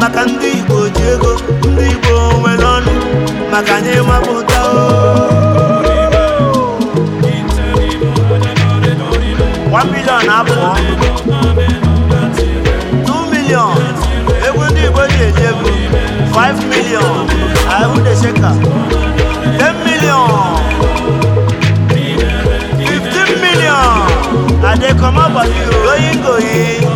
maka ndị Igbo ji ndị Igbo nwere ọnụ maka anyị mapụta one million abụọ two million egwu ndị Igbo ji eji ego five million ahụ desheka ten million fifteen million adekomabali oyi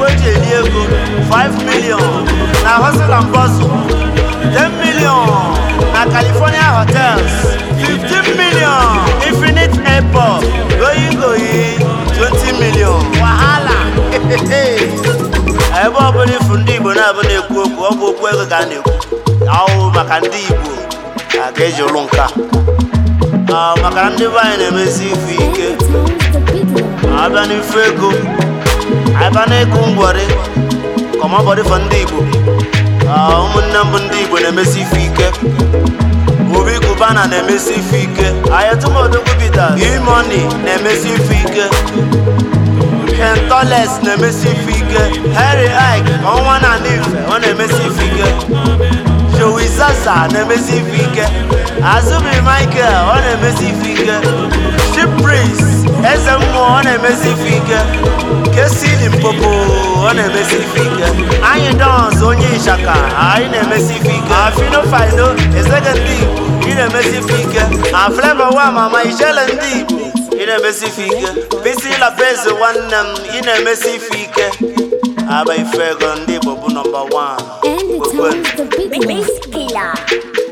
mgbe eji eri ego 5 million na hustle and bustle 10 million na California hotels 15 million infinite airport goyi goyi 20 million wahala ebe ọbụla ifu ndị Igbo na-abụ na-ekwu okwu ọgwụ bụ okwu ego ka a maka ndị Igbo a ga-eji nka maka na ndị be anyị na-emezi ifu ike abịa ego aka na-eku ngwari kọmọbọdị ndị Igbo ụmụnne mbụ ndị Igbo na-emesi ife ike obi kubana na-emesi ife ike ayatụmodogubita imoni na-emesi ife ike kentoles na-emesi ife ike Harry Ike ọnwa na ife ọ na-emesi ife ike Joey na-emesi ife ike Azubi Michael ọ na-emesi ife ike Chip eze mmụọ ọ na-emesi ife ike esili mpopo ọ na-emesi ife ike anyị dọns onye ịchaka anyị na-emesi ife ike afinofaino ezege ndị igbo ị na-emesi ife ike na fleva wa mama ijele ndị i na-emesi ife ike bisi labezi nwanne m ị na-emesi ife ike aba ife ego ndị igbo bụ nọmba 1 kpekwe